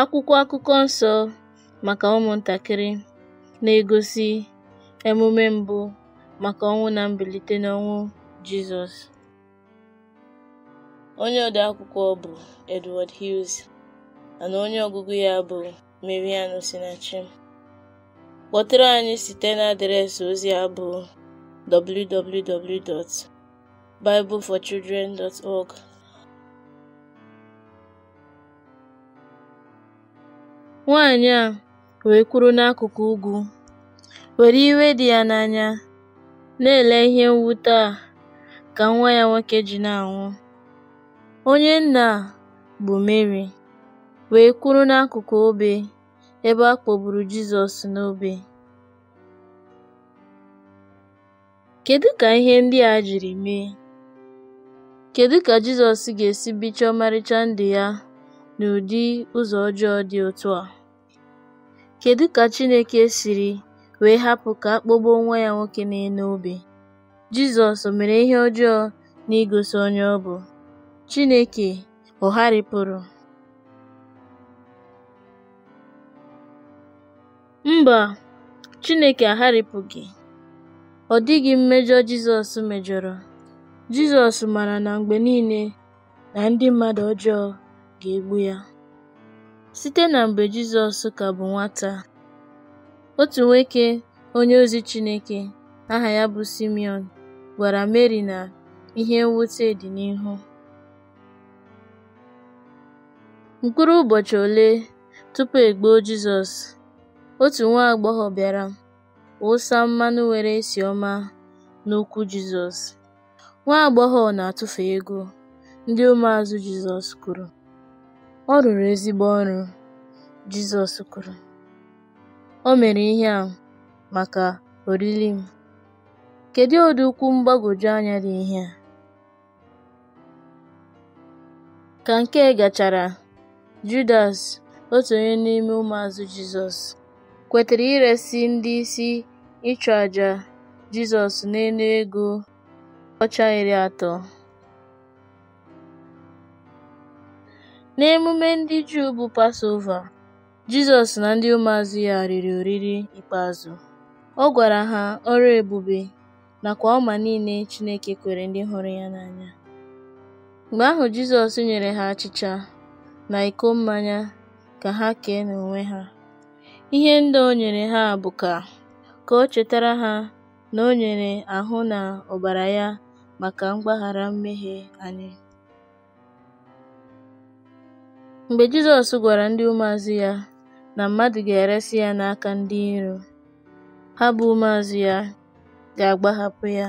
Akwụkwọ akụkọ nsọ maka ụmụntakịrị na-egosi emume mbụ maka ọnwụ na mbilite n'ọnwụ Jizọs. Onye odeakwụkwọ bụ Edward Hughes mana onye ọgụgụ ya bụ mariano Osinachi. Kpọtụrụ anyị site na adreesị ozi a bụ www.bibleforchildren.org Nwanyị a wee kwuru n'akụkụ ugwu, were iwe dị ya n'anya na-ele ihe mwute a ka nwa ya nwoke ji na-anwụ. Onye nna a bụ Meri wee kwuru n'akụkụ obe ebe a kpọgburu Jizọs n'obe. Kedu ka ihe ndị a jiri mee? Kedu ka Jizọs ga-esi bichie ọmarịcha ndị ya n'ụdị ụzọ ọjọọ dị otu a? Kedu ka Chineke siri wee hapụ ka akpọgbuo nwa ya nwoke na-enụ obi? Jizọs mere ihe ọjọọ n'igosi onye ọ bụ? Chineke ọ̀ Mba, Chineke agharịpụghị. Ọ dịghị mmejọ Jizọs mejọrọ. Jizọs mara na mgbe niile na ndị mmadụ ọjọọ ga-egbu ya. Site na mgbe Jizọs ka bụ nwata, otu nwoke ozi Chineke aha ya bụ Simeon, gwara Meri na ihe mwute dị n'ihu. Mkpụrụ ụbọchị ole tupu e gbuo Jizọs, otu nwa agbọghọ bịara ụsa mmanụ nwere esi ọma n'ụkwụ Jizọs. Nwa agbọghọ na-atụfu ego, ndị ụmụazụ Jizọs kwuru. Ọ rụrụ ezigbo ọrụ, Jizọs kwuru, o mere ihe a maka oriri m. Kedu ụdị ukwu mgbagwoju anya dị ihe a? Ka nke gachara, Judas, otu onye n'ime ụmụazụ Jizọs, kwetara iresi ndị isi ịchụàjà Jizọs n'elu ego ọcha iri atọ. N'emume ndị Juu bụ Pasova, Jizọs na ndị ụmụazụ ya riri oriri ikpeazụ. Ọ gwara ha ọrụ ebube nakwa ọma niile Chineke kwere ndị hụrụ ya n'anya. Mgbe ahụ Jizọs nyere ha achịcha na iko mmanya ka ha kee n'onwe ha. Ihe ndị o nyere ha bụ ka ka o chetara ha na o nyere ahụ na ọbara ya maka mgbaghara mmehie anyị. Mgbe Jizọs gwara ndị ụmụazụ ya na mmadụ ga-eresị ya n'aka ndị iro, ha bụ ụmụazụ ya ga-agbahapụ ya.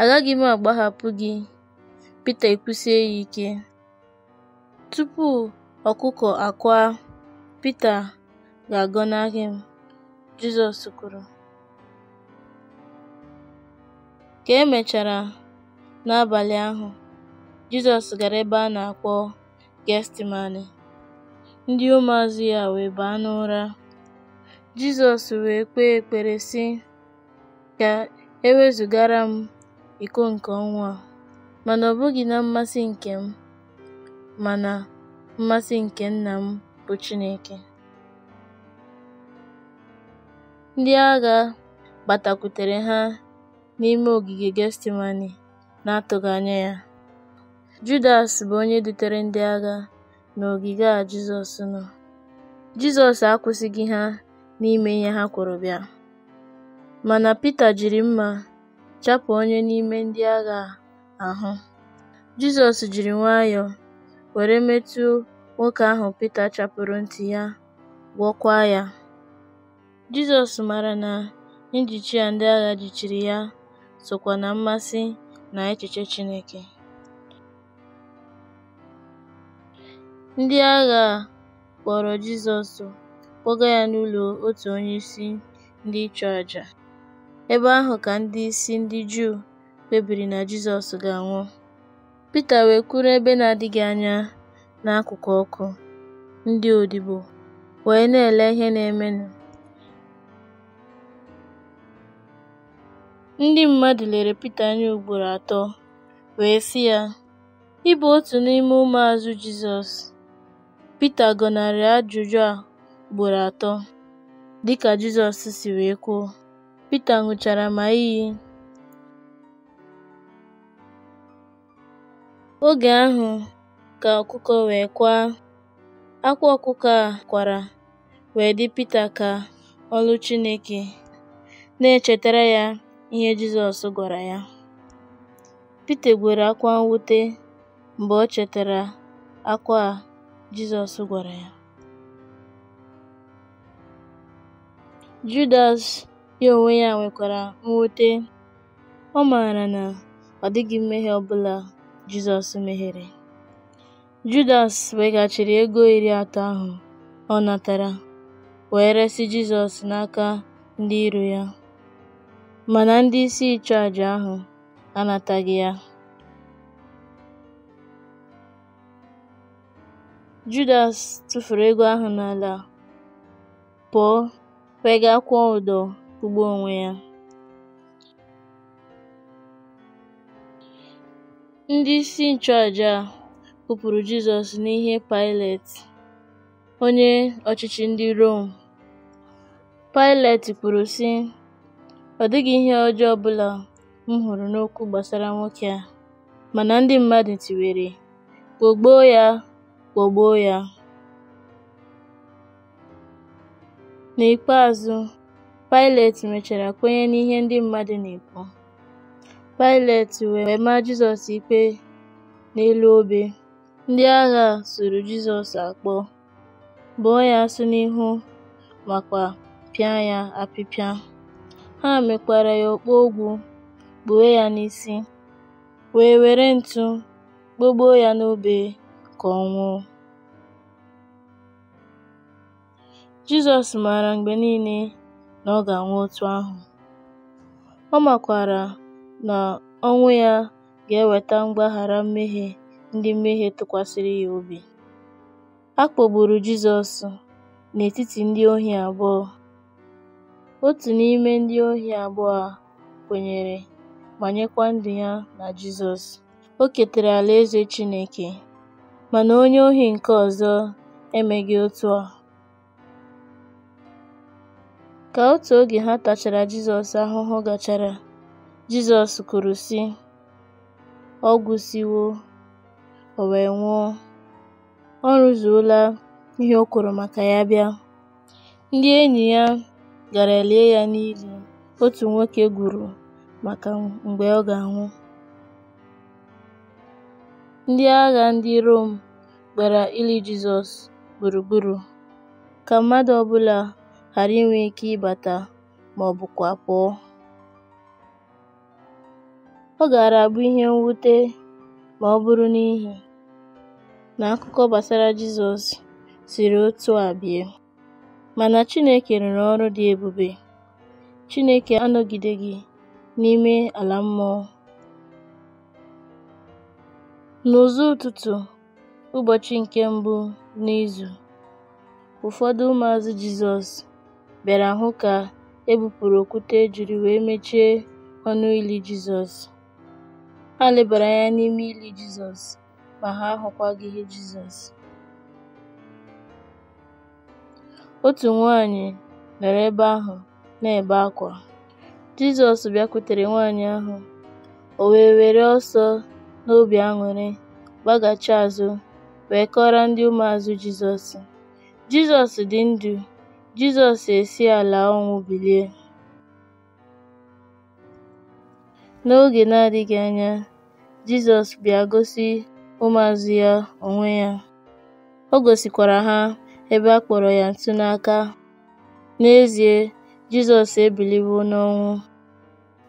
“Agaghị m agbahapụ gị,” Pita ekwusie ya ike. Tupu ọkụkọ akwa Pita “ga-agọnarị m,” Jizọs kwuru. Ka e mechara, n'abalị ahụ, Jizọs gara ebe a na-akpọ ndị ụmụazụ ya wee baa n'ụra. Jizọs wee kpee ekpere sị, ka e wezụgara m iko nke ọnwa a, mana ọ bụghị na mmasị nke m, mana mmasị nke Nna m bụ Chineke. Ndị agha gbatakwutere ha n'ime ogige gestimani na-atụghị anya ya. Judas bụ onye dutere ndị agha n'ogige a Jizọs nọ. Jizọs akwụsịghị ha n'ime ihe ha kwuru bịa, mana Pita jiri mma chapụ onye n'ime ndị agha ahụ. Jizọs jiri nwayọọ were metụ nwoke ahụ Pita chapụrụ ntị ya, gwọkwa ya. Jizọs mara na njichi a ndị agha jichiri ya sokwa na mmasị na echiche Chineke. Ndị agha a kpọrọ Jizọs kpọga ya n'ụlọ otu onyeisi ndị nchụàjà, ebe ahụ ka ndị isi ndị Juu kpebiri na Jizọs ga-anwụ. Pita wee kwuru ebe na-adịghị anya n'akụkụ ọkụ ndị odibo wee na-ele ihe na-emenụ. Ndị mmadụ lere Pita anya ugboro atọ wee sị ya, “Ị bụ otu n'ime ụmụazụ Jizọs Pita gọnarịrị ajụjụ a ugboro atọ, dị ka Jizọs si wee kwuo. Pita ṅụchara ma iyi. Oge ahụ ka ọkụkọ wee kwaa. Akwa ọkụkọ a kwara wee dị Pita ka ọlụ Chineke na-echetara ya ihe Jizọs gwara ya. Pita gwere akwa mwute mgbe o chetara akwa a Jizọs gwara ya. Judas ya onwe ya nwekwara mwute, ọ maara na ọ dịghị mmehie ọbụla Jizọs mehiere. Judas weghachiri ego iri atọ ahụ ọ natara wee resị Jizọs n'aka ndị iro ya, mana ndị isi nchụàjà ahụ anataghị ya. Judas tụfuru ego ahụ n'ala, pụọ, wega kwụọ ụdọ ugbo onwe ya. Ndị isi nchụàjà a Jizọs n'ihe paịlet onye ọchịchị ndị Rom. paịlet kwuru sị, ọ dịghị ihe ọjọọ ọbụla m hụrụ n'okwu gbasara nwoke a, mana ndị mmadụ tiwere, gboo ya kpọgbuo ya. N'ikpeazụ, Pilate mechara kwenye n'ihe ndị mmadụ na-ekwu. Pilate wee maa Jizọs ikpe n'elu obe. Ndị agha suru Jizọs akpọ, bụọ ya asụ n'ihu makwa pịa ya apịpịa. Ha mekwara ya okpu ogwu, kpuo ya n'isi, wee were ntụ gbogbo ya n'obe ka ọ nwụọ. Jizọs maara mgbe niile na ọ ga-anwụ otu ahụ. Ọ makwaara na ọnwụ ya ga-eweta mgbaghara mmehie ndị mmehie tụkwasịrị ya obi. A kpọgburu Jizọs n'etiti ndị ohi abụọ. Otu n'ime ndị ohi abụọ a kwenyere ma nyekwa ndụ ya na Jizọs. O ketara Alaeze Chineke. Mana onye ohi nke ọzọ emeghị otu a. Ka otu oge ha tachara Jizọs ahụhụ gachara, Jizọs kwuru sị, “Ọ gwụsịwo, o wee nwụọ. Ọ rụzuola ihe o kwuru maka ya bịa.” Ndị enyi ya gara lie ya n'ili otu nwoke gwuru maka mgbe ọ ga-anwụ. Ndị agha ndị Rom gbara ili Jizọs gburugburu ka mmadụ ọbụla ghara inwe ike ịbata ma ọ bụkwa pụọ. Ọ gaara abụ ihe mwute ma ọ bụrụ n'ihi na akụkọ gbasara Jizọs siri otu a bie. Mana Chineke rụrụ ọrụ dị ebube. Chineke anọgideghị n'ime ala mmụọ. N'ụzọ ụtụtụ ụbọchị nke mbụ n'izu, ụfọdụ ụmụazụ Jizọs bịara hụ ka e bupụrụ okwute e jiri wee mechie ọnụ ili Jizọs. Ha lebara anya n'ime ili Jizọs ma ha ahụkwaghị ihe Jizọs. Otu nwaanyị nọrọ ebe ahụ na-ebe akwa. Jizọs bịakwutere nwaanyị ahụ, o wee were ọsọ n'obi aṅụrị gbaghachi azụ wee kọrọ ndị ụmụazụ Jizọs. Jizọs dị ndụ Jizọs esi ala ọnwụ bilie. N'oge na-adịghị anya, Jizọs bịa gosi ụmụazụ ya onwe ya. O gosikwara ha ebe a kpọrọ ya ntụ n'aka. N'ezie, Jizọs ebiliwo n'ọnwụ.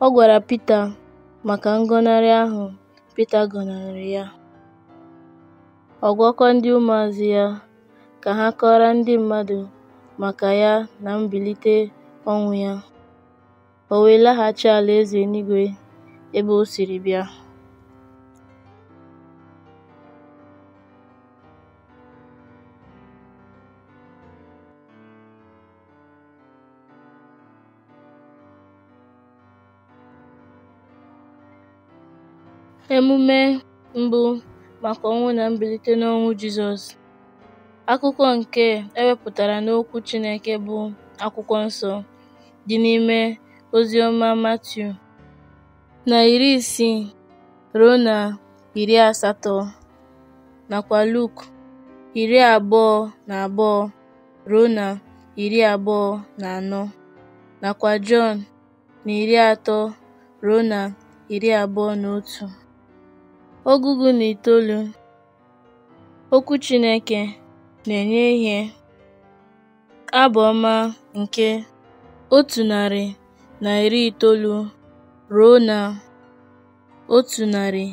Ọ gwara Pita maka ngọnarị ahụ Pita gọnarị ya. Ọ gwakwa ndị ụmụazụ ya ka ha kọọrọ ndị mmadụ maka ya na mbilite ọnwụ ya, o wee laghachi ala eze eluigwe ebe o siri bịa. Emume mbụ maka ọnwụ na mbilite n'ọnwụ Jizọs Akụkọ nke ewepụtara wepụtara n'Okwu Chineke bụ Akwụkwọ Nsọ dị n'ime Oziọma Matiu na iri isii ruo na iri asatọ nakwa Luk iri abụọ na abụọ ruo na iri abụọ na anọ nakwa Jọn na iri atọ ruo na iri abụọ na otu. Ọgụgụ na itoolu Okwu Chineke na-enye ihe. Abụ ọma nke otu narị na iri itoolu ruo na otu narị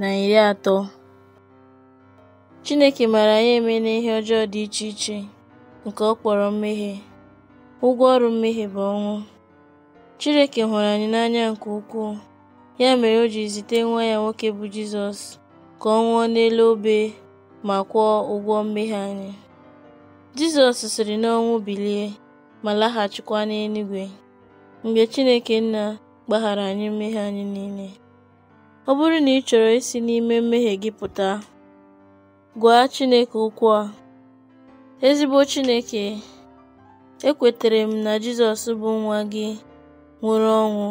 na iri atọ. Chineke maara anyị eme n'ihe ọjọọ dị iche iche nke ọ kpọrọ mmehie. Ụgwọ ọrụ mmehie bụ ọnwụ. Chineke hụrụ anyị n'anya nke ukwuu, ya mere o ji zite nwa ya nwoke bụ Jizọs ka ọ nwụọ n'elu obe ma kwụọ ụgwọ mmehie anyị. Jizọs siri n'ọnwụ bilie ma laghachikwa n'eluigwe mgbe Chineke Nna gbaghara anyị mmehie anyị niile. Ọ bụrụ na ị chọrọ isi n'ime mmehie gị pụta, gwa Chineke okwu a. Ezigbo Chineke, ekwetere m na Jizọs bụ nwa gị nwụrụ ọnwụ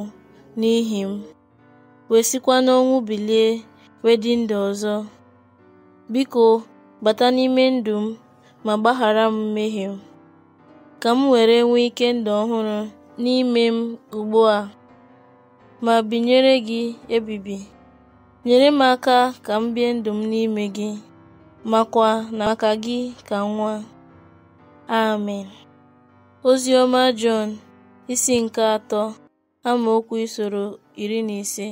n'ihi m, wee sikwa n'ọnwụ bilie wee dị ọzọ. Biko bata n'ime ndụ m ma gbaghara m mmehie m, ka m were nwee ike ndụ ọhụrụ n'ime m ugbu a ma binyere gị ebibi. Nyere m aka ka m bie ndụ m n'ime gị, makwa na maka gị ka nwa. Amen. Ozi ọma Jọn isi nke atọ amaokwu isoro iri na ise